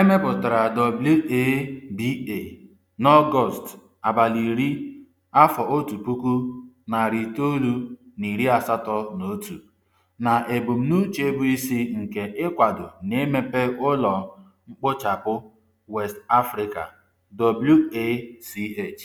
Emepụtara mepụtara WABA n'Ọgọst abalị iri afọ otu puku, narị itoolu na iri asatọ na otu, na ebumnuche bụ isi nke ịkwado na emepe ụlọ mkpochapụ West Africa (WACH).